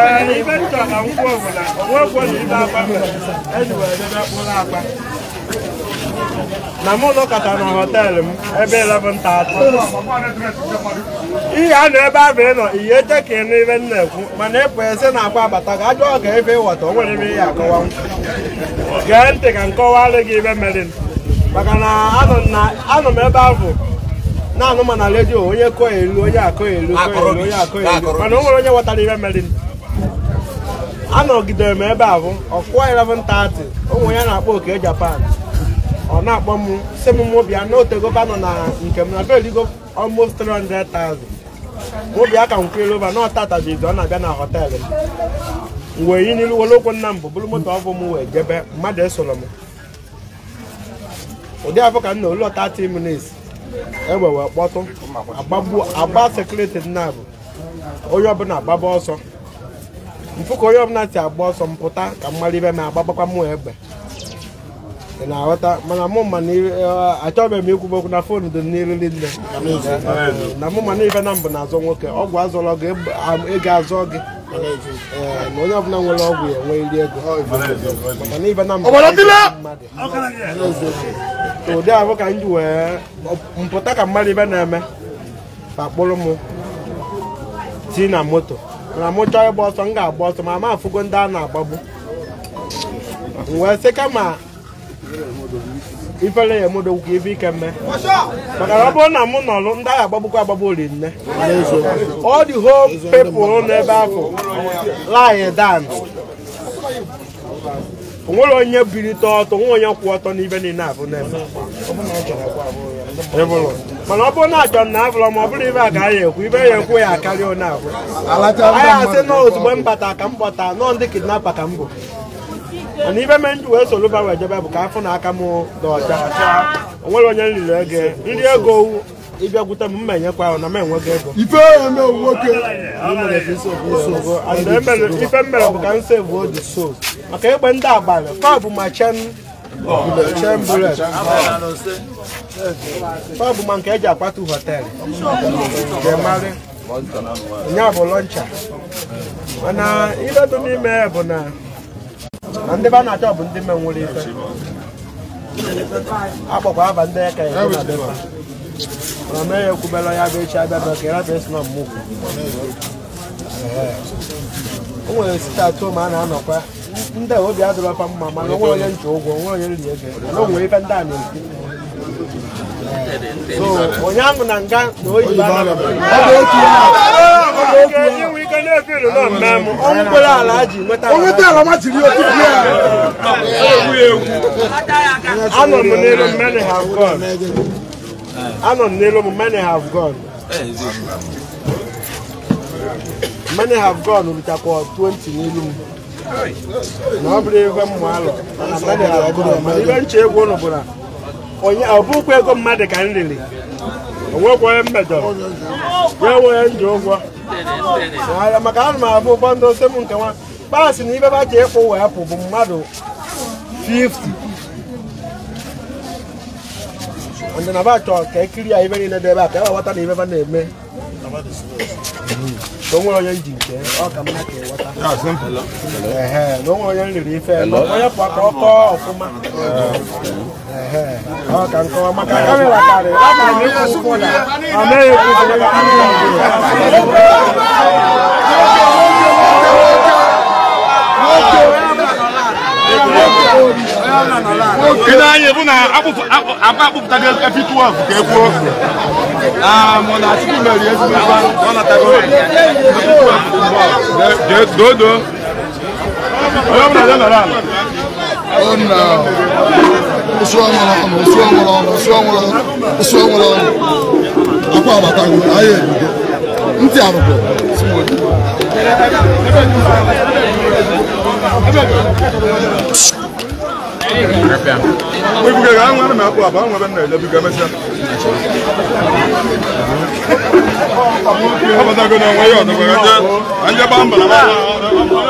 na ngwaogwe na na ibe agba mere m ebe 11 taata ihe a nọ ebe abụ nọ ihe eche ka ị nụ ibe na ekwu mana ịpụ ese na akwa abata ga ajọ ọga ebe ịghọta o nwere ebe ihe m gee ntị ka m kọwalụ gị ibe mere maka na anọ m ebe ahụ na-anụ ma na redio onye kọ elu onye akọ elu onye akọ elu mana o nwere onye ghọtara ibe mere anọgidere m ebe ahụ ọkụwa 11:30 ụmụ ya na-akpọ oke japan ọ na-akpọ m si m mụbịa n'otegova nọ na nke m na beligo almost 300,000 mụbịa ka m kwere ova na ọtatabizi ọ na-abịa na họteelụ m wee yi n'ilu were okwu nna m bụ bụrụ moto ọbụ m wee jebe mmadụ esoro m ụdị afọ ka m na olu 30 minutes egbe wee kpọtụ agba sekuriti nna bụ onye ọbụla agbaba ọsọ mfu ka onye ọbụla si agba ọsọ m ka mmadụ mara ibe m agbagbakwa m egbe ị na-aghọta mana mụ ma e, e, achọbeghị m ikwu okwu na fon dị n'iru nne na mụ ma n'ife na mbụ na-azọ nwoke ọgwụ azọrọ gị ego azọ gị e, na onye ọbụla nwere ọgwụ ya enwe iri ego maka na ife na mbụ mmadụ ụdị ahụ ka m wee mpụta ka mmadụ ibe na-eme pakpụrụ m ti na moto na mụ chọọ ịgba ọsọ m ga-agba ọsọ ma ma afụgo ndị a na-agbagbu wee sị kama ifere ya emodogwu ife ike mme maka na ọ bụrụ na mụ nọrụ ndị agha agbagbukwa agbagbu ori nne ọ dị whole people n'ebe ahụ lie down onwere onye birite ọtọ onwe onye kwụ ọtọ n'ibe niile abụ na-eme mana ọ bụrụ na achọ na afọrọ m ọ bụrụ ibe a ka anyị ekwu ibe ya ekwu ya akarịa onye abụọ anyị asị na ozugbo mbata ka m bọta nọọ ndị kidnapa ka m bụ mana ibe me nji wee soro ba wee jebe bụ ka afọ na aka m dị ọcha onwere onye nriri ego nri ego ịbịa gwute m mma enyekwa ahụ na m enwego ego ife m mere bụ ka m sevu odi so maka egbe ndị abalị kọbụ ma chen pọbụ ma nke e ji akwatu họteelụ ga-emarị nya bụ lọncha mana ibe dị n'ime bụ na ndị be a na-achọ bụ ndị me nwere ife akpọkwa aba ndị eke ya mana mee ya ekwubela ya bụ echi abịa bụ ka ịrata esi na mmụkwu o nwere site atụ ma a na-anọkwa ndị obi adịrọfa mma mana onwe onye nche ụgwọ onwe onye nri ego na onwe ife ndị a na-ekwu onye ụnyaahụ na nga na oyibo ọnwụ kwere ala ji nweta anọ m n'elu many have gone anọ m n'elu m many have gone many have gone ritakwa 20 n'elu m na ọ bụrụ ego m alọ ibe nche egwu ụnụ bụla onye ọ ego mmadụ ka m riri onwekwaghị mmejọrọ ya enweghị ndị ụgwọ maka ana m abụ ụfọdụ ose m nke nwa kpasị na ibeba ba ji ịkwụ wee pụ bụ mmadụ 50 ndị na bachọ ka ekiri ya ibe niile dị ebe a ka ewe ghọta na na-eme onye nke ọ mma ka e na onwere onye m ife onye pụọ ọkọ ọfụma a kankan maka kame la kare la kare ni ko ko na ame ye ko ko na ame ye ko Kena ye buna abu apa abu tadi epi tua ke ku. Ah mon a tu le yes ba on a tago. De do do. Yo na na na. Oh no. What's wrong with him? What's wrong with him? What's wrong with him? What's wrong with him? Akwa abata ngu, aye ngu. Nti arugo. Ebuge ga anwa na akwa aba anwa na ele biga mesa. Abata go na nwa yo no ga je. Anje ba mbala ba.